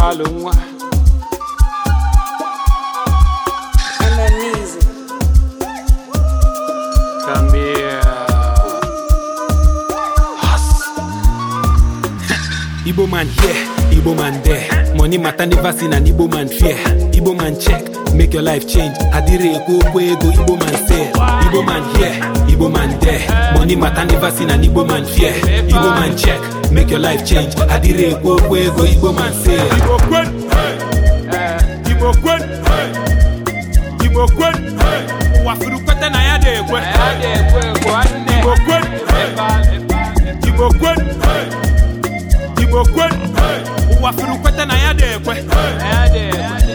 nwa Igbo man here, Igbo man there Money matter never seen an Igbo man fear Igbo man check, make your life change Adire ego okwu ego Igbo man say Igbo man here, Igbo man there Money matter never seen an Igbo man fear Igbo man check, make your life change Adire ego okwu ego Igbo man say Igbo kwen, Igbo kwen, Igbo kwen Ụwa furu kwete na ya dị ekwe okwe ụwa furu kweta na ya dị ekwe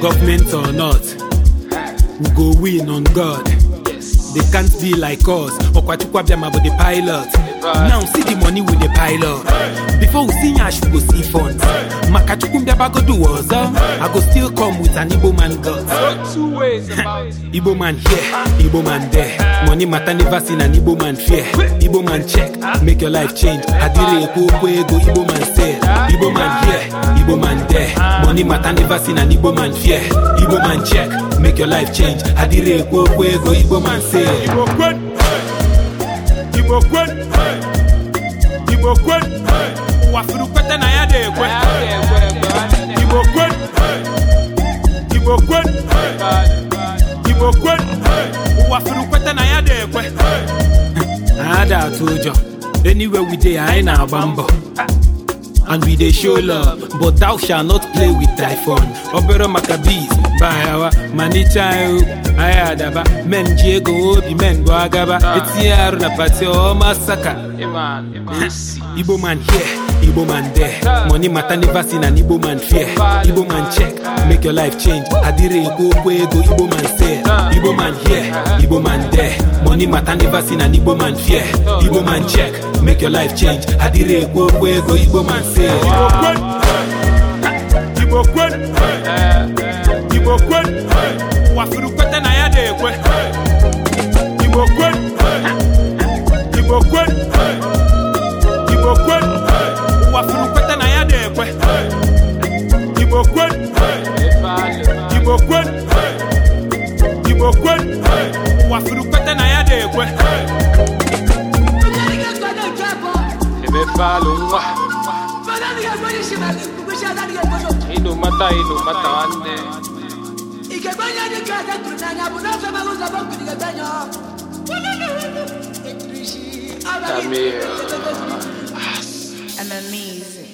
gọọmenti or not we go win on god they can't be like us ọkwachukwu abịa ma bụ the pilot now see the money with the pile up before we see ash we go see funds makachukwu mbiabagodu ọzọ i go still come with an igbo man god igbo man here igbo man there money matter never seen an igbo man fear igbo man check make your life change adire ekwu okwu ego igbo man sell igbo man here igbo man there money matter never seen an igbo man fear igbo man check make your life change adire ekwu okwu ego igbo man sell igbo kwen igbo kwen ụwa furu na ya dị ekwe igbo kwen igbo kwen igbo kwen ụwa na ya dị ekwe ada atụ ụjọ anywhere we dey anyị na-agba mbọ and we dey show love but thou shall not play with thy obere maka bees bayawa manicha ihu adaba men ji ego obi men bụ agaba ah. etinye arụ na pati ọma saka igbo here igbo man there money matter never seen an igbo man fear igbo man check make your life change adịrị ego okwu ego igbo man sell igbo man here igbo man there money matter never seen an igbo man fear igbo man check make your life change adịrị ego okwu ego igbo man sell igbo quen igbo quen, igbo kwen wafuru kwen eh, eh, eh. ba lun wa inu mata inu mata nne igegbanye dị ka na tụrụ n'anya bụ n'afọ mara ụzọ bụ nkiri gegbanye ọ I'm amazing.